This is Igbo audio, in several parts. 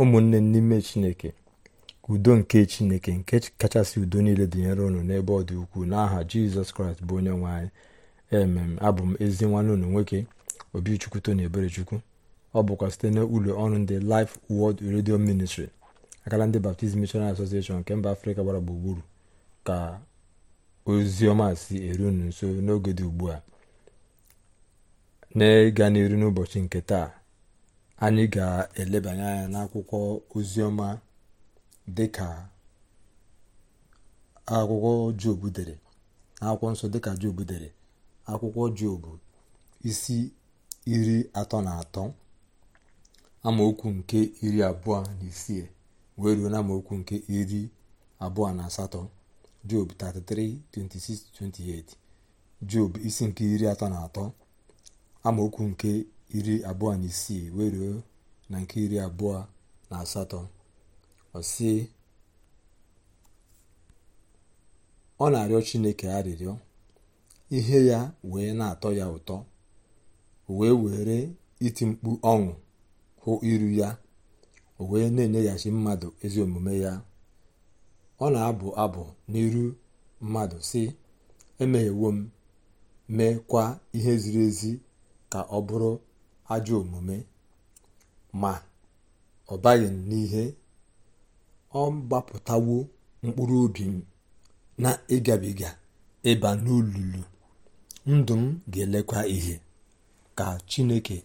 ụmụnne n'ime chineke udo nke chineke nke kachasị udo niile dịnyere unu n'ebe ọ dị ukwuu n'aha jizọs kraịst bụ onye nwe anyị emem abụ m ezi nwanne unu nwoke obichukwu tony eberechukwu ọ bụkwa site n'ụlọ ọrụ ndị Life Word redio Ministry akala ndị baptizim Missionary Association nke mba afrịka gbara gburugburu ka ozi ọma si eru unu nso n'oge dị ugbu a na-ịga n'iru n'ụbọchị nke taa anyị ga-elebanye anya n'akwụkwọ oziọma dịka akwụkwọ jobu dere akwụkwọ nsọ dịka jobu dere akwụkwọ jobu isi iri atọ na atọ amaokwu nke iri abụọ na isii wee ruo na nke iri abụọ na asatọ job 26 28 job isi nke iri atọ na atọ amaokwu nke iri abụọ na isii wee na nke iri abụọ na asatọ ọ sị ọ na-arịọ chineke arịrịọ ihe ya wee na-atọ ya ụtọ wee were iti mkpu ọṅụ hụ iru ya o wee na-enyeghachi mmadụ ezi omume ya ọ na-abụ abụ n'iru mmadụ si emeghewo m mee kwa ihe ziri ezi ka ọ bụrụ ajọ omume ma ọ baghị n'ihe ọ gbapụtawo mkpụrụ obi m na ịgabiga ịba n'olulu ndụ m ga-elekwa ihe ka chineke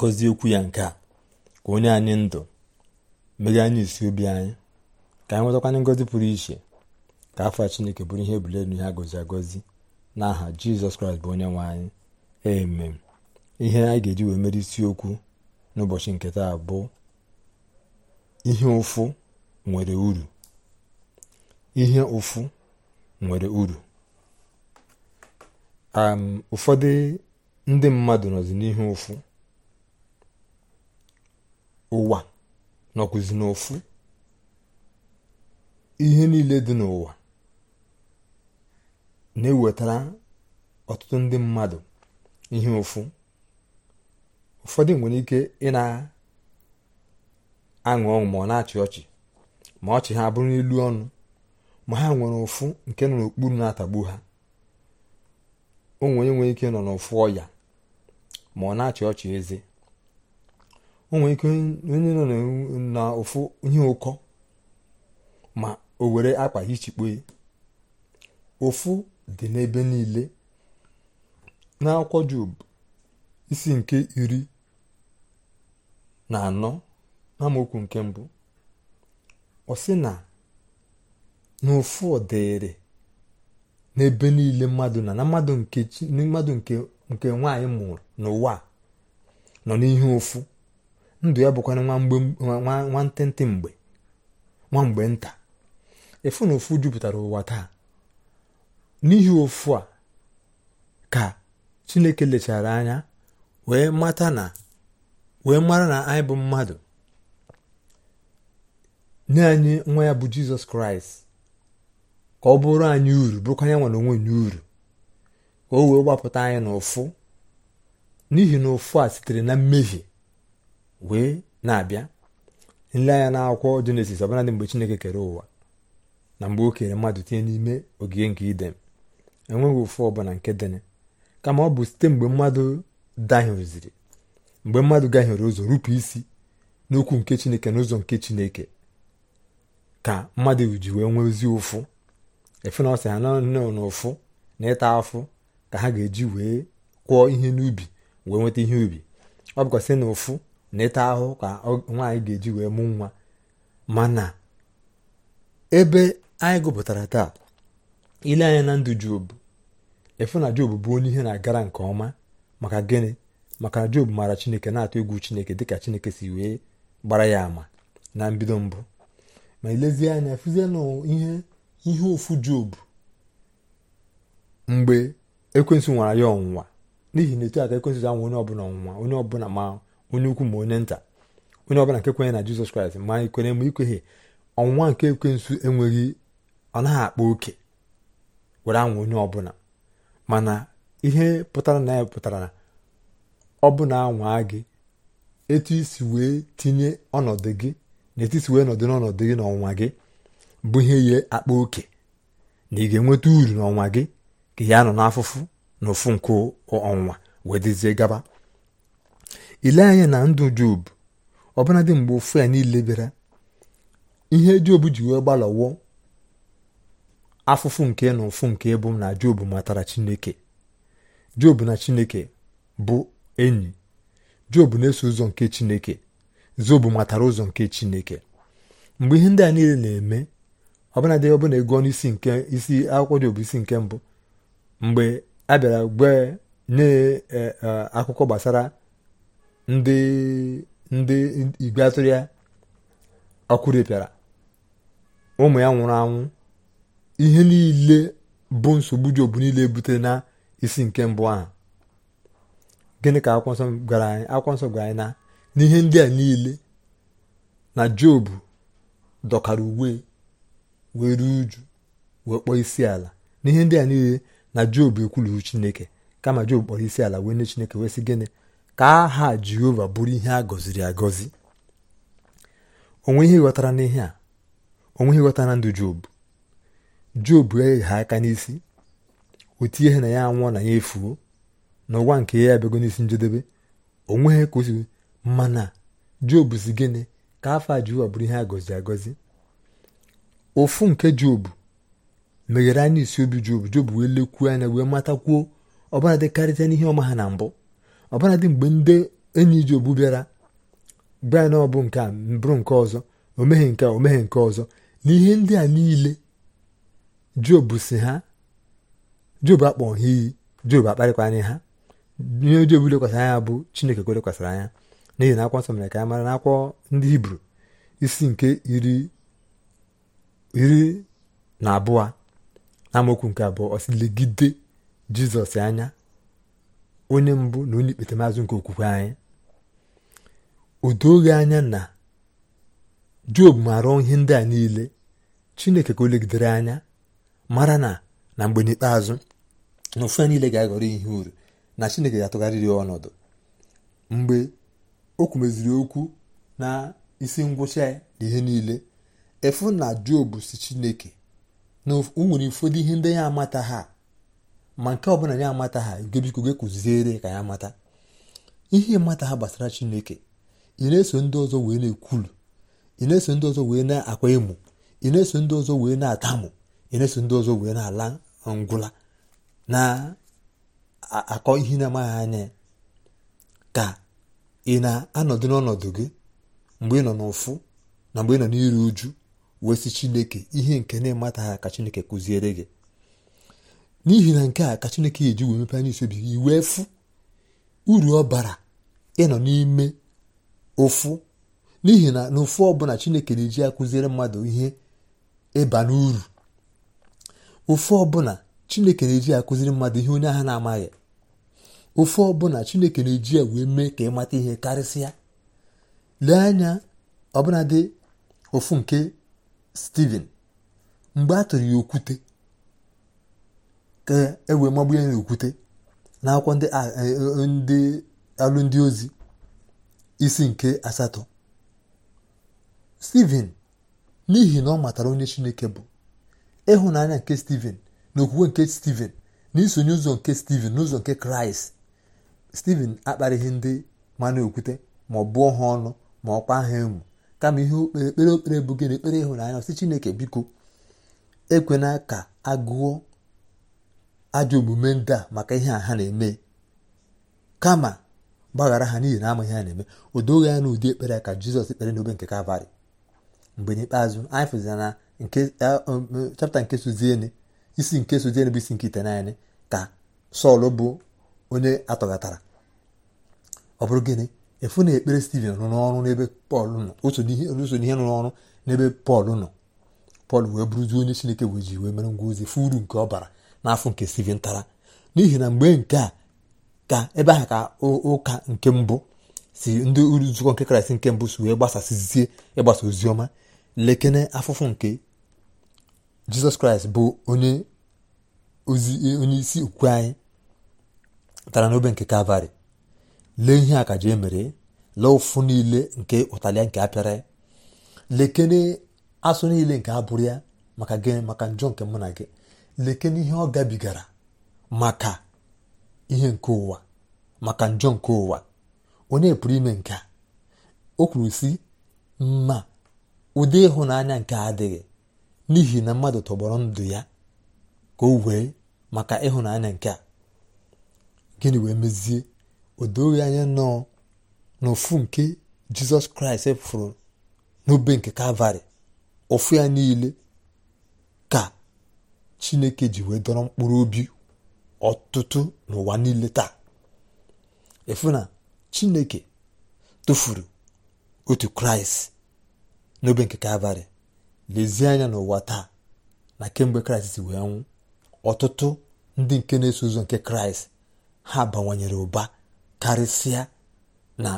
gọzie okwu ya nke a ka onye anyị ndụ meghe anyị isi obi anyị ka anyị nwetakwana ngozi pụrụ iche ka afọ a chineke bụrụ ihe ebule ihe na agọzi n'aha jizọs kraịst bụ onye nwe anyị emem. ihe a ga-eji wee mere isiokwu n'ụbọchị nke taa bụ ihe ụfụ nwere uru ihe ụfụ nwere uru ụfọdụ ndị mmadụ nọzi n'ihe ụfụ ụwa nọkwụzi n'ụfụ ihe niile dị n'ụwa na-ewetara ọtụtụ ndị mmadụ ihe ụfụ ụfọdụ nwere ike ị na-aṅụ ọṅụ ma ọ na-achị ọchị ma ọchị ha bụrụ n'elu ọnụ ma ha nwere ụfụ nke nọ n'okpuru na-atagbu ha onwere nwere ike nọ n'ụfụ ọya ma ọ na-achị ọchị eze onwere ike onye nọ n'ụfụ ihe ụkọ ma o were akpa hichikpo ụfụ dị n'ebe niile n'akwụkwọ Job isi nke iri na anọ amaokwu nke mbụ ọ sị na n'ofu dịrị n'ebe niile mmadụ na na mmadụ nke nke nwaanyị mụrụ n'ụwa nọ n'ihe ofu ndụ ya bụkwana nwa ntịntị mgbe nwa nta efu na ofu jupụtara ụwa taa n'ihi ofu a ka chineke lechara anya wee mata na wee mara na anyị bụ mmadụ nye anyị nwa ya bụ jizọs kraịst ka ọ bụrụ anyị uru bụrụkwa ya nwere onwe uru ka o wee gbapụta anyị n'ụfụ n'ihi na ụfụ a sitere na mmehie wee na-abịa nle anya na n'akwụkwọ jenesis dị mgbe chineke kere ụwa na mgbe o kere mmadụ tinye n'ime ogige nke idem enweghị ụfụ ọbụla nke dịnị kama ọ bụ site mgbe mmadụ dahụziri mgbe mmadụ gahiere ụzọ rupụ isi n'okwu nke chineke n'ụzọ nke chineke ka mmadụ ji wee nwee ozi ụfụ efe na ọsọ ya na ụfụ na ịta afụ ka ha ga-eji wee kwụọ ihe n'ubi wee nweta ihe ubi ọ bụkwa sị na ụfụ na ịta ahụ ka nwaanyị ga-eji wee mụ nwa mana ebe anyị gụpụtara taa ile anya na ndụ jobu efu na jobu bụ onye ihe na-agara nke ọma maka gịnị maka na job maara chineke na-atụ egwu chineke dịka chineke si wee gbara ya ama na mbido mbụ ma ilezie anya fụzie na ihe ihe ofu job mgbe ekwensu nwara ya ọnwụnwa n'ihi na etu aka ekwensu anwụ onye ọbụla ọnwụnwa onye ọbụla ma onye ukwu ma onye nta onye ọbụla nke kwenye na jizọs kraịst ma ikwere ma ikweghe ọnwụnwa nke ekwensu enweghị ọ naghị akpa oke were anwụ onye ọbụla mana ihe pụtara na ya pụtara na Ọ ọbụna anwa gị etu isi wee tinye ọnọdụ gị na etu wee nọdụ n'ọnọdụ gị n'ọnwa gị bụ ihe ya akpa oke na ị ga-enweta uru n'ọnwa gị ka ya nọ n'afụfụ na ofu nke ọnwa wee dịzie gaba ile anya na ndụ job ọbụladị mgbe ofu ya niile bịara ihe job ji wee gbalọwo afụfụ nke na ụfụ nke bụ na job matara chineke job na chineke bụ enyi job na-eso ụzọ nke chineke job matara ụzọ nke chineke mgbe ihe ndị a niile na-eme ọbụnadị ọbụna ego n'isi nke isi akwụkwọ job isi nke mbụ mgbe a bịara gwe nye e, e, akụkọ gbasara ndị ndị igwe atụrụ ya ọkụ ụmụ ya nwụrụ anwụ ihe niile bụ nsogbu job niile butere na isi nke mbụ ahụ gịnị ka akwụkwọ nsọ gwara anyị akwụkwọ nsọ gwara anyị na n'ihe ndị a niile na job dọkara uwe were uju wee kpọọ isi ala n'ihe ndị a niile na job ekwulughị chineke kama job kpọrọ isi ala wee nye chineke wee sị gịnị ka aha jehova bụrụ ihe a gọziri agọzi onwe ihe ghọtara n'ihe a onwe ihe ghọtara ndụ job job eghe aka n'isi otu ihe na ya anwụọ na ya efuo n'ụwa nke ya abịago n'isi njedebe onweghị nweghị ka o mana jobu si gịnị ka afọ a bụrụ ihe a agọzi ofu nke jobu meghere anya isi obi jobu job wee lekwuo anya wee matakwuo ọbụladị karịcha n'ihe ọma ha na mbụ ọbụladị mgbe ndị enyi jobu bịara bịa na ọbụ nke a bụrụ nke ọzọ omeghe nke a omeghe nke ọzọ na ihe ndị a niile jobu si ha jobu akpọ ha iyi jobu akparịkwanye ha ihe ọjọọ bụla anya bụ chineke ka lekwasịrị anya n'ihi na akwọ nsọ mere ka ya mara na akwọ ndị hibru isi nke iri na abụọ na amaokwu nke abụọ ọ legide jizọs anya onye mbụ na onye ikpetemazụ nke okwukwe anyị odo oghe anya na job maara ihe ndị a niile chineke ka o legidere anya mara na na mgbe n'ikpeazụ na ofu ya niile ga-aghọrọ ihe uru na chineke ga-atụgharịrị ọnọdụ mgbe o kwumeziri okwu na isi ngwụcha na ihe niile efu na job si chineke na nwere ụfọdụ ihe ndị ya amata ha ma nke bụla ya amata ha gebiko gị kụziere ka ya mata ihe mata ha gbasara chineke ị na-eso ndị ọzọ wee na-ekwulu ị na-eso ndị ọzọ wee na-akwa emo ị na-eso ndị ọzọ wee na-atamụ ị na-eso ndị ọzọ wee na-ala ngwụla na akọ ihe na-amaghị anya ka ị na-anọdụ n'ọnọdụ gị mgbe ị nọ n'ụfụ na mgbe ị nọ n'iru uju wee sị chineke ihe nke na-emataghị ka chineke kụziere gị n'ihi na nke a ka chineke eji wee mepe anya isobi gị wee fụ uru ọ bara ịnọ n'ime ụfụ n'ihi na n'ụfụ ọbụla chineke na-eji akụziere mmadụ ihe ịba n'uru ụfụ ọbụla chineke na-eji akụziri mmadụ ihe onye ahụ na-amaghị ofe ọbụla chineke na-eji ya wee mee ka ịmata ihe karịsịa lee anya ọbụladị ofu nke steven mgbe a tụrụ ya okwute ka e wee magbu ya na okwute na akwụkwọ ndị e, e, e, ndị ozi isi nke asatọ steven n'ihi na ọ matara onye chineke bụ ịhụnanya nke steven na nke Steven na ụzọ nke Steven n'ụzọ nke Kraịst Steven akparịghị ndị mana okwute ma ọ bụọ ha ọnụ ma ọ kwa ha emu kama ihe ekpere okpere bụ na ekpere ịhụnanya ọsị Chineke biko ekwena ka agụọ ajọ omume ndị a maka ihe a ha na-eme kama gbaghara ha n'ihi na amaghị ha na-eme o doghị ya n'ụdị ekpere ka Jizọs ekpere n'obe nke Kalvarị mgbe n'ikpeazụ anyị fụzina na chapta nke eh, um, um, sozieni isi nke soji bụ isi nke naanị ka sọl bụ onye atọghatara ọ bụrụ gịnị efu na ekpere stiven nọ n'ọrụ n'ebe pọl nọ oso n'ihe nọ n'ọrụ n'ebe pọl nọ pọl wee bụrụzie onye chineke wee ji mere ngwa ozi fụ nke ọ bara n'afọ nke stiven tara n'ihi na mgbe nke a ka ebe aha ka ụka nke mbụ si ndị nzukọ nke kraịst nke mbụ si wee gbasasịzie ịgbasa ọma lekene afụfụ nke jizọs kraịst bụ onye isi okwukwe anyị tara n'obe nke kalvarị lee ihe a ka emere lee ụfụ niile nke ụtalịa nke apịara lekene asụ niile nke abụrụ ya maka gị maka njọ nke mụ na gị lekene ihe ọ gabigara maka ihe nke ụwa maka njọ nke ụwa onye pụrụ ime nke a o kwuru si mma ụdị ịhụnanya nke adịghị n'ihi na mmadụ tọgbọrọ ndụ ya ka o wee maka ịhụnanya nke a gịnị wee mezie o doghị anya nọọ n'ụfụ nke jizọs kraịst fụrụ n'obe nke kalvarị ụfụ ya niile ka chineke ji wee dọrọ mkpụrụ obi ọtụtụ n'ụwa niile taa efu na chineke tụfuru otu kraịst n'obe nke kalvarị lezie anya n'ụwa taa na kemgbe kraịst si wee nwụ ọtụtụ ndị nke na-eso ụzọ nke kraịst ha bawanyere ụba karịsịa na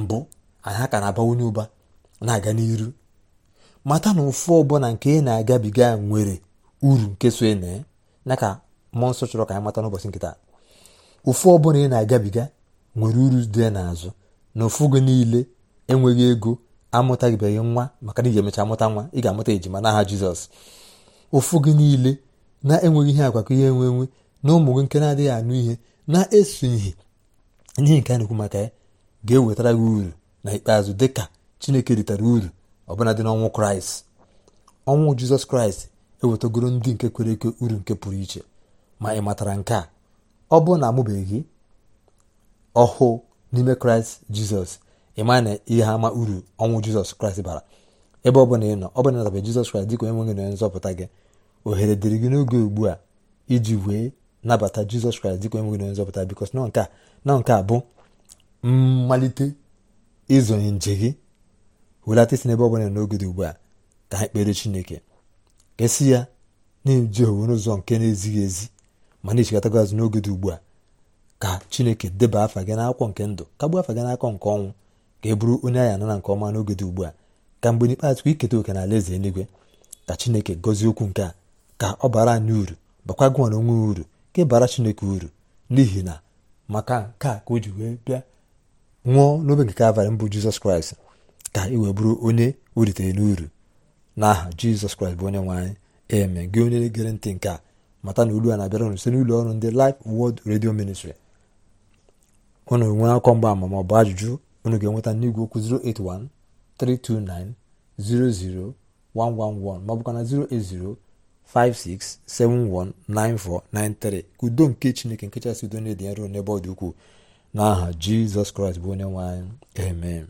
mbụ anyị ha ka na-abawanye ụba na-aga n'iru mata na ụfụ ọbụla nke ị na-agabiga nwere uru nke so na ya ka mmụọ nsọ chọrọ ka anyị mata n'ụbọchị nke taa ụfụ ọbụla ị na-agabiga nwere uru dị n'azụ na ụfụ gị niile enweghị ego amụtaghịbeghị nwa maka na iji emecha amụta nwa ị ga-amụta ejima n'aha jizọs ụfụ gị niile na-enweghị ihe agwakọ ihe enwe enwe na ụmụ gị nke na-adịghị anụ ihe na-eso ihe nke a na-ekwu maka ya ga-ewetara gị uru na ikpeazụ dị ka chineke ritara uru bụla dị n'ọnwụ kraịst ọnwụ jizọs kraịst ewetagoro ndị nke kwere eke uru nke pụrụ iche ma ị matara nke a ọ bụrụ na amụbeghị ọhụụ n'ime kraịst jizọs ịma na ihe ama uru ọnwụ jizọs kraịst bara ebe ọ bụla ị nọ ọ bụla nataba jizọs kraịst dịka onye nwe onye nzọpụta gị ohere dịrị gị n'oge ugbu a iji wee nabata jizọs kraịst dịka onye nwe onye nzọpụta bikos nọ nke a bụ mmalite ịzonye nje gị welata isi n'ebe ọ bụla n'oge dị ugbu a ka ha kpere chineke ka esi ya na-eji owe n'ụzọ nke na-ezighị ezi ma na-echekọtago azụ n'oge dị ugbu a ka chineke deba afa gị n'akwụkwọ nke ndụ kagbuo afa gị n'akwụkwọ nke ọnwụ ka e bụrụ onye anyị anara nke ọma n'oge dị ugbu a ka mgbe n'ikpeazụ ka iketa oke na alaeze eluigwe ka chineke gọzie okwu nke a ka ọ bara anyị uru bakwa na onwe uru ka bara chineke uru n'ihi na maka nke a ka o ji wee bịa nwụọ n'obe nke kalvarị mbụ jizọs kraịst ka ị wee bụrụ onye o uru n'uru n'aha jizọs kraịst bụ onye nwe anyị eme gị onye gere ntị nke a mata na olu a na-abịara unu site n'ụlọ ọrụ ndị Life Word Radio Ministry unu nwee akọ mgba ama ma ọ bụ ajụjụ onu ga-enweta n'igwe okwu 081 329 00 111 ma ọ bụkwa na 08056719493 ka udo nke chineke nke chasị udo na-edi n'ebe ọ ukwu n'aha jizọs kraịst bụ onye nwe amen